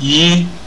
yi